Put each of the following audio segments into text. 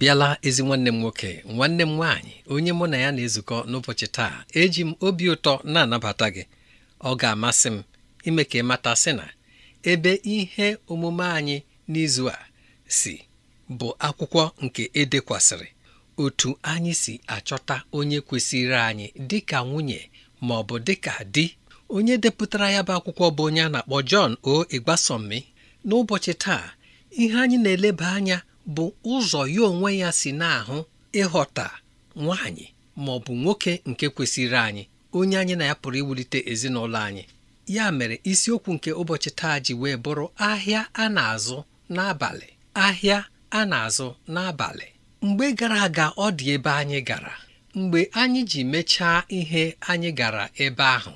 bịala ezi nwanne m nwoke nwanne m nwaanyị onye mụ na ya na-ezukọ n'ụbọchị taa eji m obi ụtọ na-anabata gị ọ ga-amasị m ime ka ị mata sị na ebe ihe omume anyị n'izu a si bụ akwụkwọ nke edekwasịrị otu anyị si achọta onye kwesịrị anyị dị ka nwunye ma ọ bụ dịka di onye depụtara ya bụ akwụkwọ bụ onye a na-akpọ o Ịgbasọmmi n'ụbọchị taa ihe anyị na-eleba anya bụ ụzọ ya onwe ya si na-ahụ ịghọta nwaanyị ma ọ bụ nwoke nke kwesịrị anyị onye anyị na ya pụrụ iwulite ezinụlọ anyị ya mere isiokwu nke ụbọchị taa ji wee bụrụ ahịa a na-azụ n'abalị ahịa a na-azụ n'abalị mgbe gara aga ọ dị ebe anyị gara mgbe anyị ji mechaa ihe anyị gara ebe ahụ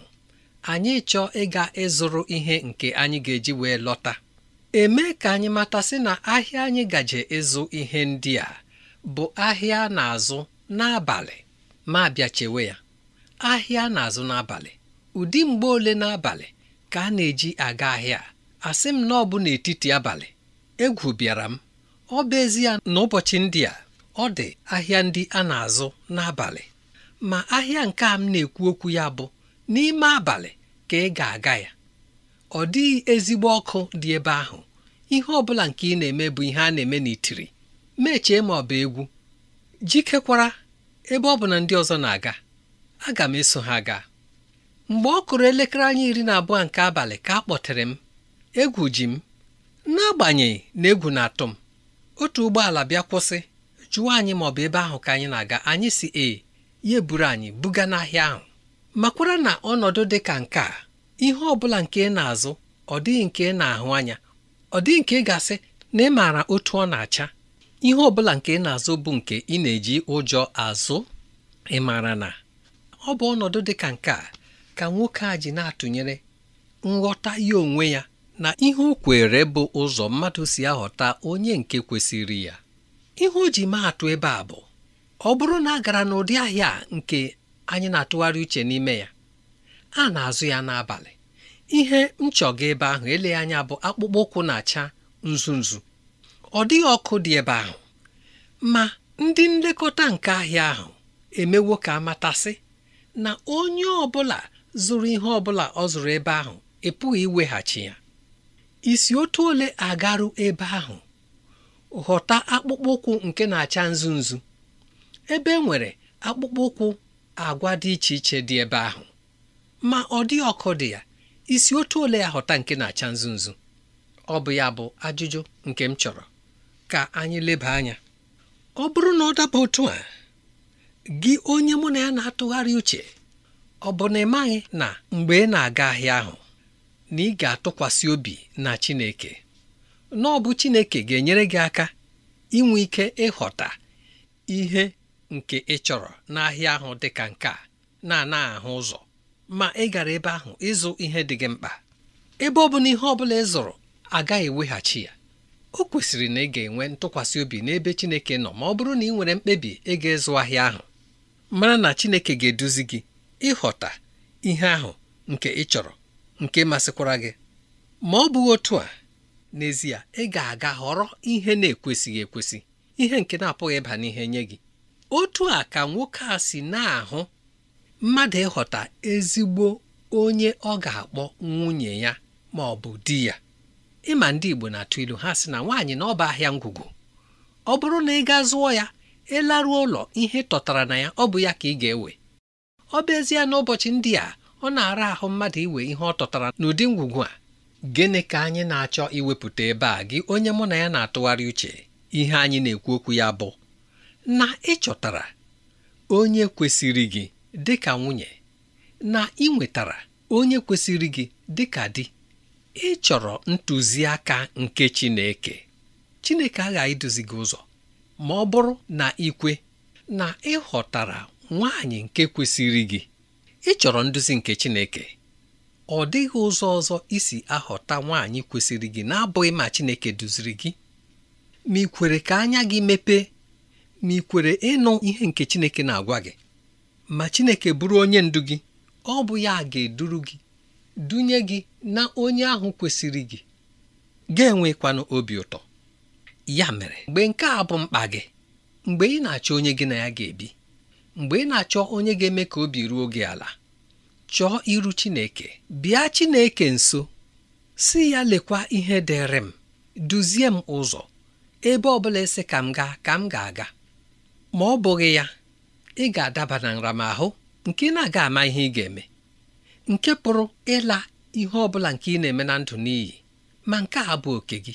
anyị chọọ ịga ịzụrụ ihe nke anyị ga-eji wee lọta eme ka anyị matasị na ahịa anyị gaje ịzụ ihe ndị a bụ ahịa a na-azụ n'abalị ma bịa chewe ya ahịa na-azụ n'abalị ụdị mgbe ole n'abalị ka a na-eji aga ahịa a sị m na ọ bụ n'etiti abalị egwu bịara m ọ bụ ezie na ụbọchị ndị a ọ dị ahịa ndị a na-azụ n'abalị ma ahịa nke a m na-ekwu okwu ya bụ n'ime abalị ka ị ga-aga ya ọ dịghị ezigbo ọkụ dị ebe ahụ ihe ọ bụla nke ị na-eme bụ ihe a na-eme n'itiri mechie ma ọ bụ egwu jikekwara ebe ọ bụ na ndị ọzọ na-aga aga m eso ha gaa mgbe ọ kụrụ elekere anya iri na abụọ nke abalị ka a kpọtere m egwu ji m n'agbanyeghị na egwu na-atụ m otu ụgbọala bịa kwụsị jụọ anyị ma ọ bụ ebe ahụ ka anyị na-aga anyị si e ya eburu anyị buga n'ahịa ahụ makwara na ọnọdụ dị ka nke a ihe ọ bụla nke ị na-azụ ọ dịghị nke ị na-ahụ anya ọ dịghị nke ị ga-asị na ị maara otu ọ na-acha ihe ọ bụla nke ị na-azụ bụ nke ị na-eji ụjọ azụ ị maara na ọ bụ ọnọdụ dị ka nke a ka nwoke a ji na-atụnyere nghọta ya onwe ya na ihe o kwere bụ ụzọ mmadụ si aghọta onye nke kwesịrị ya ihe o ji maa atụ ebe a bụ ọ bụrụ na a gara n'ụdị ahịa nke anyị na-atụgharị uche n'ime ya a na-azụ ya n'abalị ihe m ebe ahụ ele anya bụ akpụkpọ ụkwụ na-acha nzu nzu ọ dịghị ọkụ dị ebe ahụ ma ndị nlekọta nke ahịa ahụ emewo ka amatasị na onye ọbụla zụrụ ihe ọbụla ọ zụrụ ebe ahụ ịpụghị iweghachi ya isi otu ole agarụ ebe ahụ ghọta akpụkpọ ụkwụ nke na-acha nzu nzu ebe e nwere akpụkpọ ụkwụ agwa dị iche iche dị ebe ahụ ma ọ dị ọkụ dị ya isi otu ole ya ghọta nke na-acha nzu nzu ọ bụ ya bụ ajụjụ nke m chọrọ ka anyị leba anya ọ bụrụ na ọ daba otu a gị onye mụ na ya na-atụgharị uche ọ bụ na ị maghị na mgbe ị na-aga ahịa ahụ na ị ga-atụkwasị obi na Chineke na ọ bụ Chineke ga-enyere gị aka inwe ike ịghọta ihe nke ị chọrọ n'ahịa ahụ dị ka nke a na-ana ahụ ụzọ ma ị gara ebe ahụ ịzụ ihe dị gị mkpa ebe ọ bụla ihe ọ bụla ị zụrụ agaghị eweghachi ya o kwesịrị na ị ga-enwe ntụkwasị obi n'ebe Chineke nọ ma ọ bụrụ na ị nwere mkpebi ịga ga-ịzụ ahịa ahụ mara na Chineke ga-eduzi gị ịghọta ihe ahụ nke ị chọrọ nke masịkwara gị ma ọ bụghị otu a n'ezie ị ga-aga họrọ ihe na-ekwesịghị ekwesị ihe nke na-apụghị ịba n'ihe nye gị otu a ka nwoke a si na-ahụ mmadụ ịghọta ezigbo onye ọ ga-akpọ nwunye ya ma ọ bụ di ya ịma ndị Igbo na-atụ ilu ha sị na nwaanyị na ọba ahịa ngwugwu ọ bụrụ na ị gaa zụọ ya ịlaruo ụlọ ihe tọtara na ya ọ bụ ya ka ị ga-ewe ọ bụezie ezie n'ụbọchị ndị a ọ na-ara ahụ mmadụ iwe ihe ọ tọtara n'ụdị ngwugwu a gịnị ka anyị na-achọ iwepụta ebe a gị onye mụ na ya na-atụgharị uche ihe anyị na-ekwu okwu ya bụ na ịchọtara onye kwesịrị gị dị ka nwunye na ị nwetara onye kwesịrị gị dị ka di ị chọrọ ntụziaka nke Chineke Chineke aghaghị iduzi gị ụzọ ma ọ bụrụ na ikwe na ị nwanyị nke kwesịrị gị ị chọrọ nduzi nke Chineke ọ dịghị ụzọ ọzọ isi aghọta nwaanyị kwesịrị gị na-abụghị ma Chineke duziri gị ma ị kwere ka anya gị mepee ma ị kwere ịnụ ihe nke Chineke na-agwa gị ma Chineke bụrụ onye ndu gị ọ bụ ya ga-eduru gị dunye gị na onye ahụ kwesịrị gị ga-enwekwanụ obi ụtọ ya mere mgbe nke a bụ mkpa gị mgbe ị na-achọ onye gị na ya ga-ebi mgbe ị na-achọ onye ga-eme ka obi ruo gị ala chọọ iru Chineke bịa Chineke nso si ya lekwa ihe dịrị m duzie m ụzọ ebe ọ bụla esi ka m gaa ka m ga-aga ma ọ bụghị ya ị ga-adaba na nramahụ nke ị na-aga ama ihe ị ga-eme nke pụrụ ịla ihe ọ bụla nke ị na-eme na ndụ n'iyi ma nke a bụ oke gị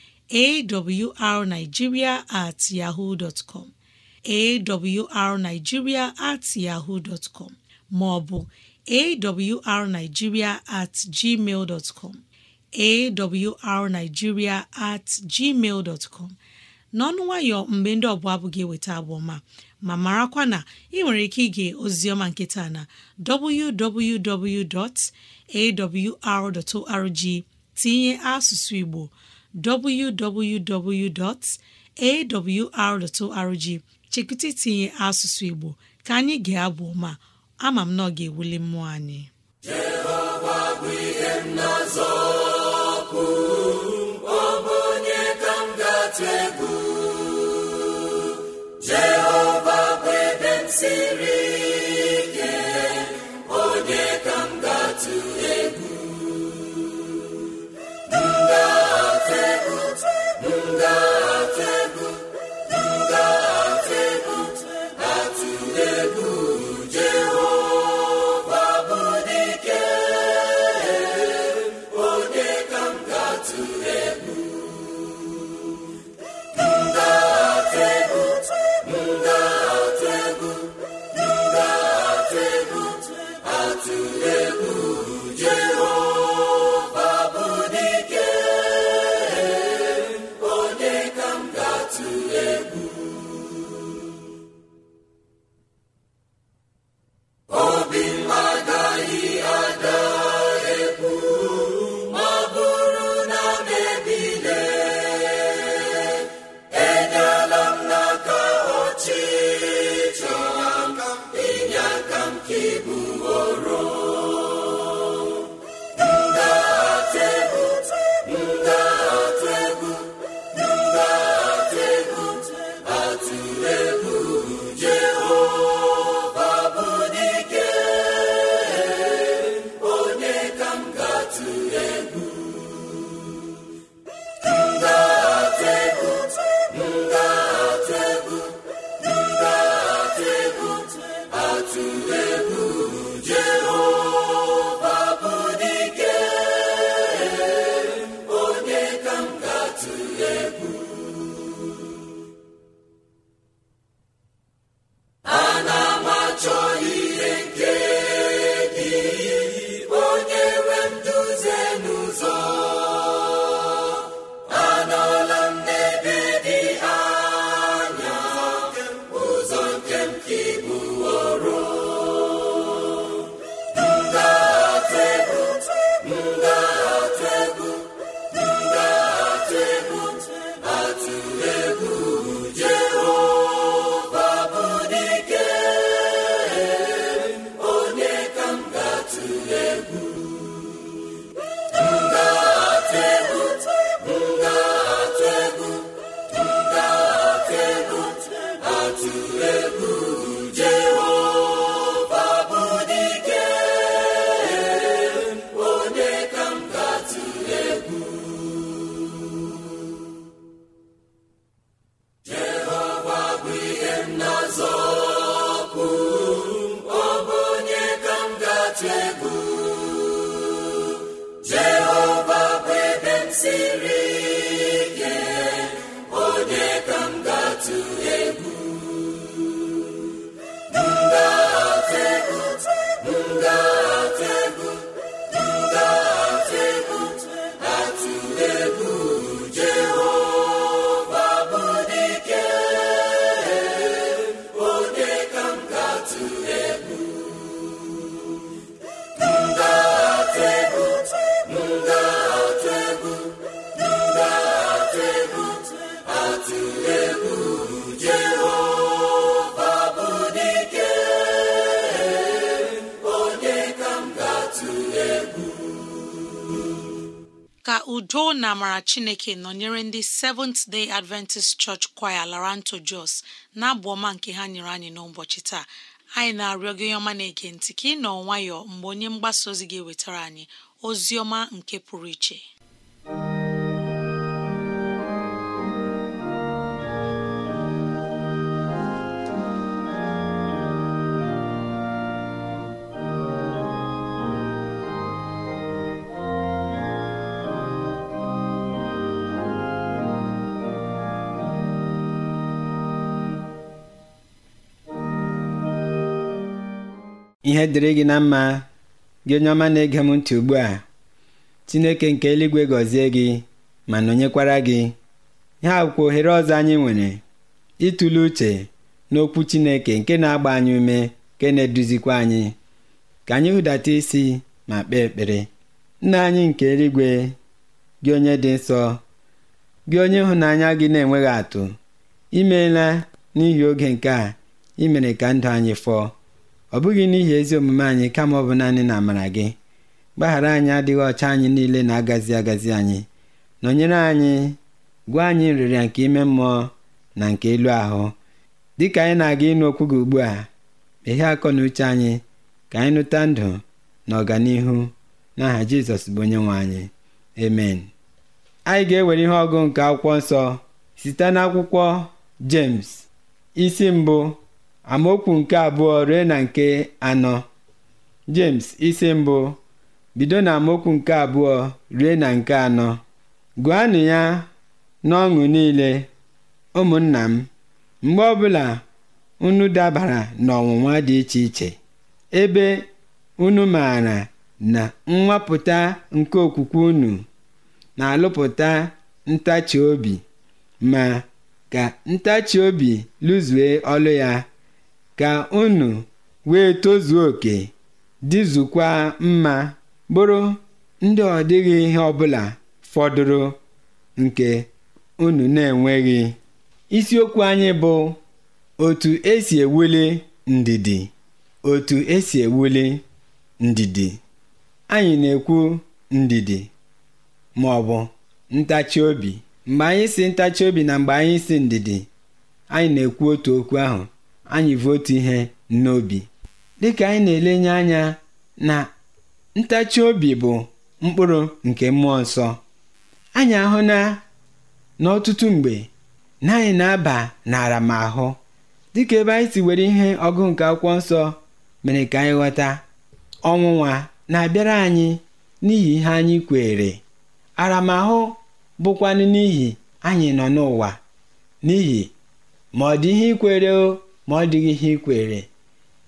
awrnigeria at yahoo dot com at yahoo dot maọbụ awrnigeria at gmail dot com at gmail dot n'ọnụ nwayọ mgbe ndị ọbụla abụghị eweta abụ ma marakwa na ị nwere ike ige ozioma nkịta na www.awr.org tinye asụsụ Igbo www.awr.org chekụta tinye asụsụ Igbo ka anyị ga-abụ ma ama m na ọ ga-ewuli mmụọ anyị Jehova bụ ihe m na-azọpụ ọ bụ onye ka m ga-atụ egwu Jehova bụ ebe m siri Buddha. udo na amara chineke nọnyere ndị Seventh Day Adventist Church Choir Laranto Jos na-abụ ọma nke ha nyere anyị n'ụbọchị taa anyị na-arịọ gị ọma na-ege ntị ka ị nọ nwayọọ mgbe onye mgbasa ozi gị wetara anyị ozi ọma nke pụrụ iche ihe dịrị gị na mma gị onye ọma na-ege m ntị ugbu a chineke nke eluigwe gọzie gị ma nọnyekwara gị ha akwụkwọ ohere ọzọ anyị nwere ịtụle uche n'okwu chineke nke na-agba anyị ume nke na-eduzikwa anyị ka anyị hụdata isi ma kpee ekpere nna anyị nke eluigwe gị onye dị nsọ gị onye ịhụnanya gị na-enweghị atụ imeela n'ihi oge nke a imere ka ndụ anyị fọọ ọ bụghị n'ihi ezi omume anyị kama ọ bụ naanị na amara gị gbaghara anyị adịghị ọcha anyị niile na-agazi agazi anyị nọnyere anyị gwa anyị nrịrịa nke ime mmụọ na nke elu ahụ Dị ka anyị na-aga ịnụ okwu gị ugbu a meghee akọ na uche anyị ka anyị nụta ndụ na ọganihu n'aha jizọs bụ onye nwe anyị emen anyị ga-ewere ihe ọgụ nke akwụkwọ nsọ site n'akwụkwọ james isi mbụ amaokwu nke abụọ ruo na nke anọ James isi mbụ bido na amaokwu nke abụọ rie na nke anọ gụanụ ya n'ọṅụ niile ụmụnna m mgbe ọbụla unu dabara n'ọnwụnwa dị iche iche ebe unu maara na nwapụta nke okwukwe unu na-alụpụta ntachi obi ma ka ntachi obi lụzue ọlụ ya ga unu wee tozuo oke dịzukwa mma bụrụ ndị ọ dịghị ihe ọbụla fọdụrụ nke unu na-enweghị isiokwu anyị bụ otu esi ewuli ndidi otu esi ewuli ndidi anyị na-ekwu ndidi ma ọ bụ ntachi obi mgbe anyị si ntachi obi na mgbe anyị si ndidi anyị na-ekwu otu okwu ahụ anyị votu ihe n'obi dịka anyị na-elenye anya na ntachi obi bụ mkpụrụ nke mmụọ nsọ anyị ahụ na n'ọtụtụ mgbe na anyị na-aba n'ara ma ahụ dịka ebe anyị si were ihe ọgụ nke akwụkwọ nsọ mere ka anyị ghọta ọnwụnwa na-abịara anyị n'ihi ihe anyị kwere aramahụ bụkwanụ n'ihi anyị nọ n'ụwa n'ihi ma ọ dị ihe ikwere o ma ọ dịghị ihe ikwere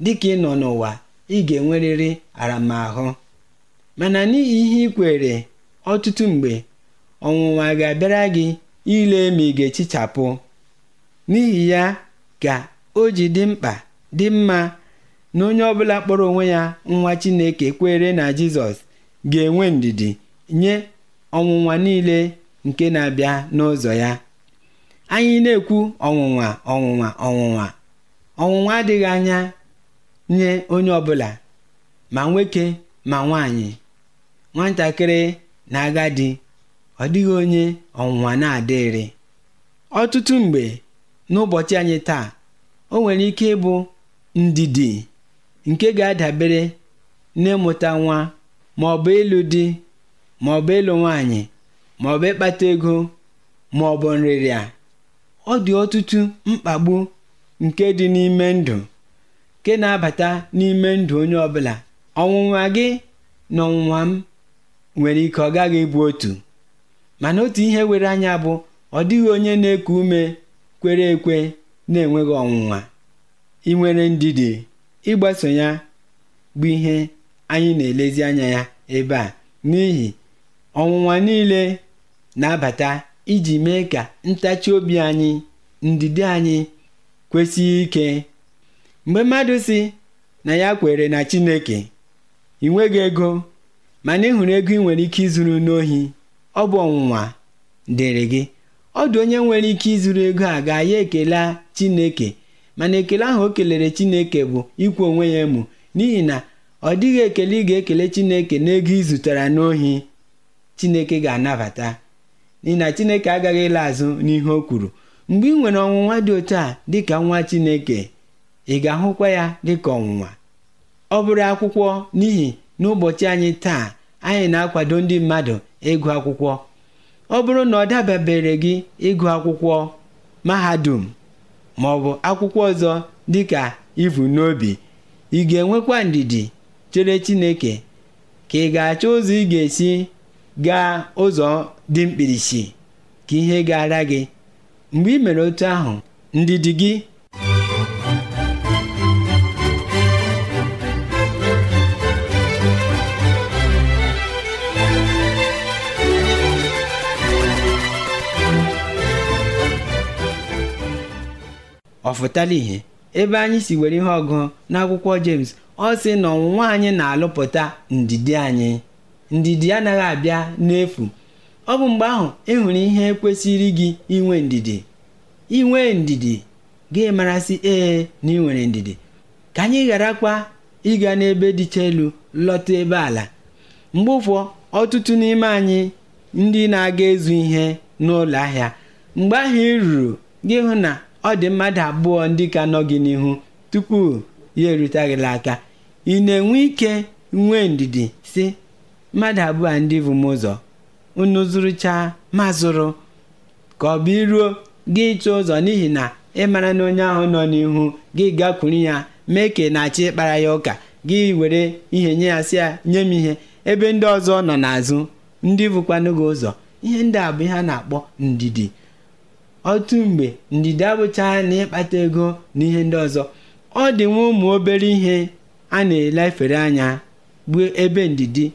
Dịka ị nọ n'ụwa, ị ga-enwerịrị aramahụ. Mana n'ihi ihe ikwere ọtụtụ mgbe, ọnwụnwa ga-abịara gị ile ma ị ga-echichapụ. N'ihi ya ka o ji dị mkpa dị mma na onye ọbụla kpọrọ onwe ya nwa Chineke kwere na Jizọs ga-enwe ndidi nye ọnwụnwa niile nke na-abịa n'ụzọ ya. Anyị na-ekwu ọnwụnwa ọnwụnwa ọnwụnwa ọnwụnwa adịghị anya nye onye ọbụla ma nwoke ma nwanyị nwatakịrị na agadi ọ dịghị onye ọnwụnwa na-adịrị ọtụtụ mgbe n'ụbọchị anyị taa o nwere ike ịbụ ndidi nke ga-adabere na n'ịmụta nwa ma ọ bụ ịlụ di ma ọ bụ ịlụ nwanyị ma ọ ịkpata ego ma ọ bụ nrịrịa ọ dị ọtụtụ mkpagbu nke dị n'ime ndụ nke na-abata n'ime ndụ onye ọbụla ọnwụnwa gị na ọnwụnwa m nwere ike ọ gaghị ịbụ otu mana otu ihe were anya bụ ọ dịghị onye na-eku ume kwere ekwe na-enweghị ọnwụnwa inwere ndidi ịgbaso ya bụ ihe anyị na-elezi anya ya ebe a n'ihi ọnwụnwa niile na-abata iji mee ka ntachi obi anyị ndidi anyị kwesịghị ike mgbe mmadụ si na ya kwere na chineke ị nweghị ego mana ịhụrụ ego ị nwere ike ịzụrụ n'ohi ọ bụ ọnwụnwa dịrị gị ọ dị onye nwere ike ịzụrụ ego a ga-aya ekele chineke mana ekele ahụ o kelere chineke bụ ikwu onwe ya emu n'ihi na ọ dịghị ekele ị ga-ekele chineke n'ego ị zụtara n'ohi chineke ga-anabata n'ihi na chineke agaghị ịla azụ n'ihe o kwuru mgbe ị nwere ọnwụnwa dị otu a dịka nwa Chineke ị ga-ahụkwa ya dịka ọnwụnwa ọ bụrụ akwụkwọ n'ihi n'ụbọchị anyị taa anyị na-akwado ndị mmadụ ịgụ akwụkwọ ọ bụrụ na ọ dababere gị ịgụ akwụkwọ mahadum ma ọ bụ akwụkwọ ọzọ dịka ivu n'obi ị ga-enwekwa ndidi chere Chineke ka ị ga-achọ ụzọ ị ga-esi gaa ụzọ dị mkpirisi ka ihe gara gị mgbe i mere otu ahụ ndidi gị ọ ihe ebe anyị si were ihe ọgụ n'akwụkwọ James ọ sị na ọnwụnwa anyị na-alụpụta ndidi anyị ndidi anaghị abịa n'efu Ọ bụ mgbe ahụ ị e nwere ihe kwesịrị gị inwe ndidi. Inwe ndidi gị marasị ee na ị nwere ndidi. Ka anyị gharakwa ịga n'ebe dịcha elu lọta ebe ala. Mgbe ụfọ ọtụtụ n'ime anyị ndị na-aga ezu ihe n'ụlọ ahịa mgbe ahụ ị ruru gị hụ na ọ dị mmadụ abụọ ndị ka nọ gị n'ihu tupu ya gịla aka ị na-enwe ike nwee ndidi si mmadụ abụọ ndị bụ m ụzọ unu zụrụcha ma zụrụ ka ọ bụ iruo gị ịchọ ụzọ n'ihi na ị mara na onye ahụ nọ n'ihu gị gakwuru ya mee ka na-achị ịkpara ya ụka gị were ihe nye ya si ya nye m ihe ebe ndị ọzọ nọ n'azụ ndị bụkwanụ gị ụzọ ihe ndị a bụ ihe a na-akpọ ndidi otu mgbe ndidi abụchaa na ịkpata ego na ihe ndị ọzọ ọ dị nwa ụmụ obere ihe a na-elefere anya bụ ebe ndidi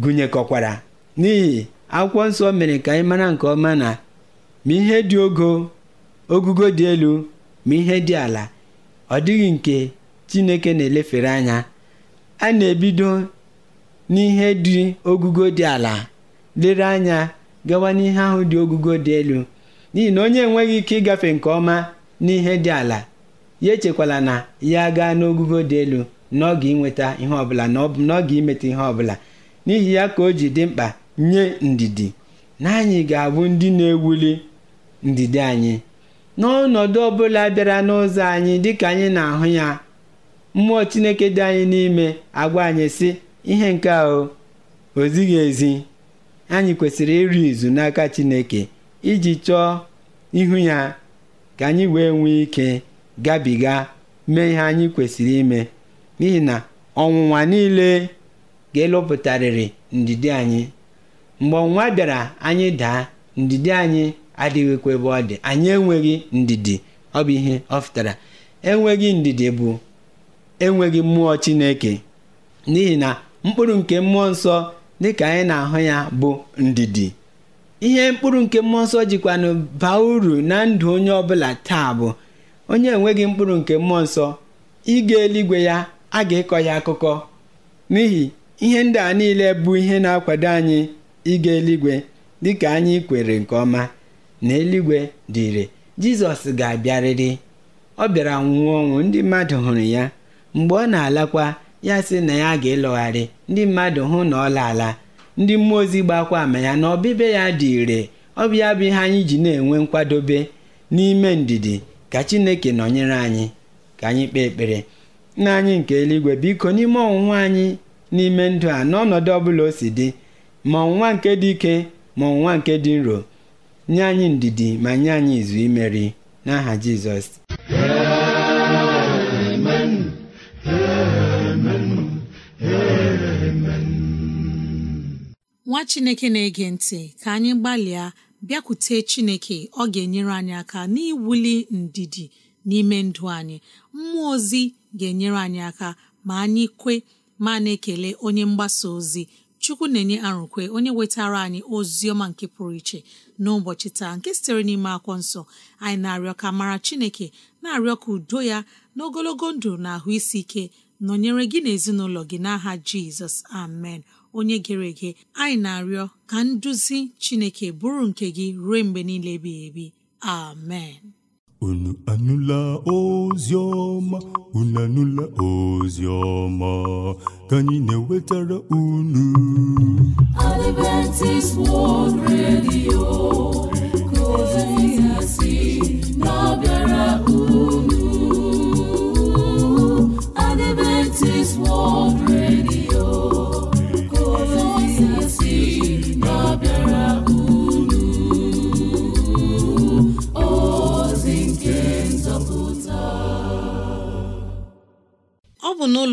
gụnyekọkwara n'ihi akwụkwọ nsọ mere ka anyị mara nke ọma na ma ihe dị ogo ogugo dị elu ma ihe dị ala ọ dịghị nke chineke na-elefere anya a na-ebido n'ihe dị ogugo dị ala lere anya gawa n'ihe ahụ dị ogugo dị elu n'ihi na onye enweghị ike ịgafe nke ọma n'ihe dị ala ya echekwala na ya gaa n'ogugo dị elu ga inweta ihe ọbụla na ọ ga n'oge imeta ihe ọbụla n'ihi ya ka o ji dị mkpa nye ndidi na anyị ga-abụ ndị na-ewuli ndidi anyị n'ọnọdụ ọbụla bịara n'ụzọ anyị dịka anyị na-ahụ ya mmụọ Chineke dị anyị n'ime agwa anyị sị ihe nke ahụ ozighi ezi anyị kwesịrị ịrị izu n'aka Chineke iji chọọ ihu ya ka anyị wee nwee ike gabiga mee ihe anyị kwesịrị ime n'ihi na ọnwụnwa niile ga elọpụtarịrị ndidi anyị Mgbe ọnwa bịara anyị daa, ndidi anyị adịghịkwa ebe ọ dị, anyị enweghị ndidi, ọ bụ ihe ọ fụtara Enweghị ndidi bụ enweghị mmụọ Chineke n'ihi na mkpụrụ nke mmụọ nsọ dịka anyị na-ahụ ya bụ ndidi. Ihe mkpụrụ nke mmụọ nsọ jikwanụ baa uru na ndụ onye ọbụla taa bụ onye enweghị mkpụrụ nke mmụọ nsọ ịga eluigwe ya a ga-ịkọ ya akụkọ n'ihi ihe ndị a niile bụ ihe na-akwado anyị ịga eluigwe dịka anyị kwere nke ọma na eluigwe dị ire jizọs ga-abịarịrị ọ bịara nwụọ ọnwụ ndị mmadụ hụrụ ya mgbe ọ na-alakwa ya sị na ya ga-elọgharị ndị mmadụ hụ na ọ laala ndị mmụọ ozi gbakwa ama ya na ọbịbịa ya dị ire ọ bụ ya bụ ihe anyị ji na-enwe nkwadobe n'ime ndidi ka chineke nọnyere anyị ka anyị kpee ekpere na anyị nke eluigwe biko n'ime ọnwụnwa anyị n'ime ndụ a n'ọnọdụ ọbụla o si dị ma ọnwụnwa nke dị ike ma ọnwụnwa nke dị nro nye anyị ndidi ma nye anyị izu imeri n'aha Jizọs nwa chineke na-ege ntị ka anyị gbalịa bịakwute chineke ọ ga-enyere anyị aka n'iwuli ndidi n'ime ndụ anyị mmụọ ozi ga-enyere anyị aka ma anyị kwe ma na-ekele onye mgbasa ozi chukwu na-enye arụkwe onye wetara anyị ozi ọma nke pụrụ iche n'ụbọchị taa nke sitere n'ime akwọ nsọ anyị na-arịọ ka mara chineke na-arịọ ka udo ya na ogologo ndụ na ahụ isi ike nọnyere gị na ezinụlọ gị n'aha jizọs amen onye gere ege anyị na-arịọ ka nduzi chineke bụrụ nke gị ruo mgbe niile ebighị ebi amen Unu anụla ozi ọma, unu anụla ozi ọma, ka anyị na-ewetara unu. Adventist World Radio.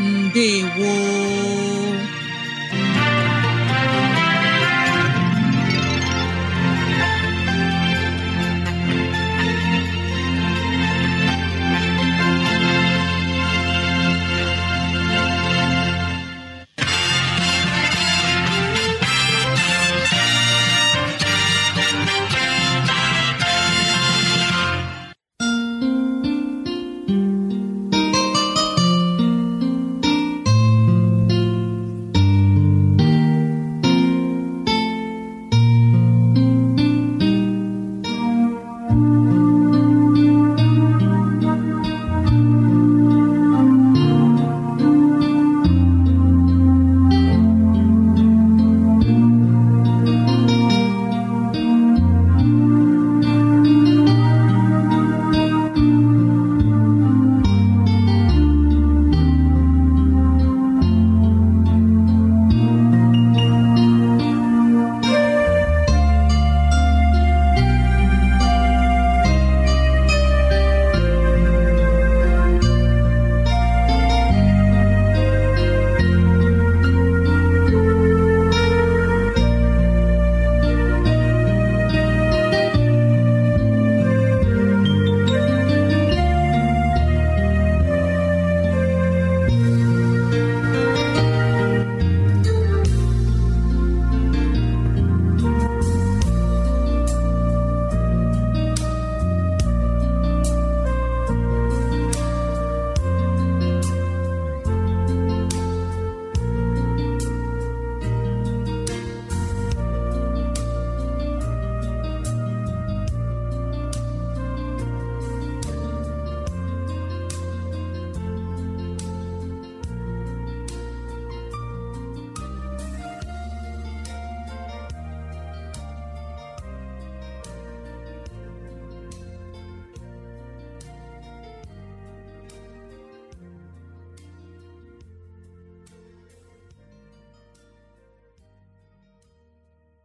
ndewo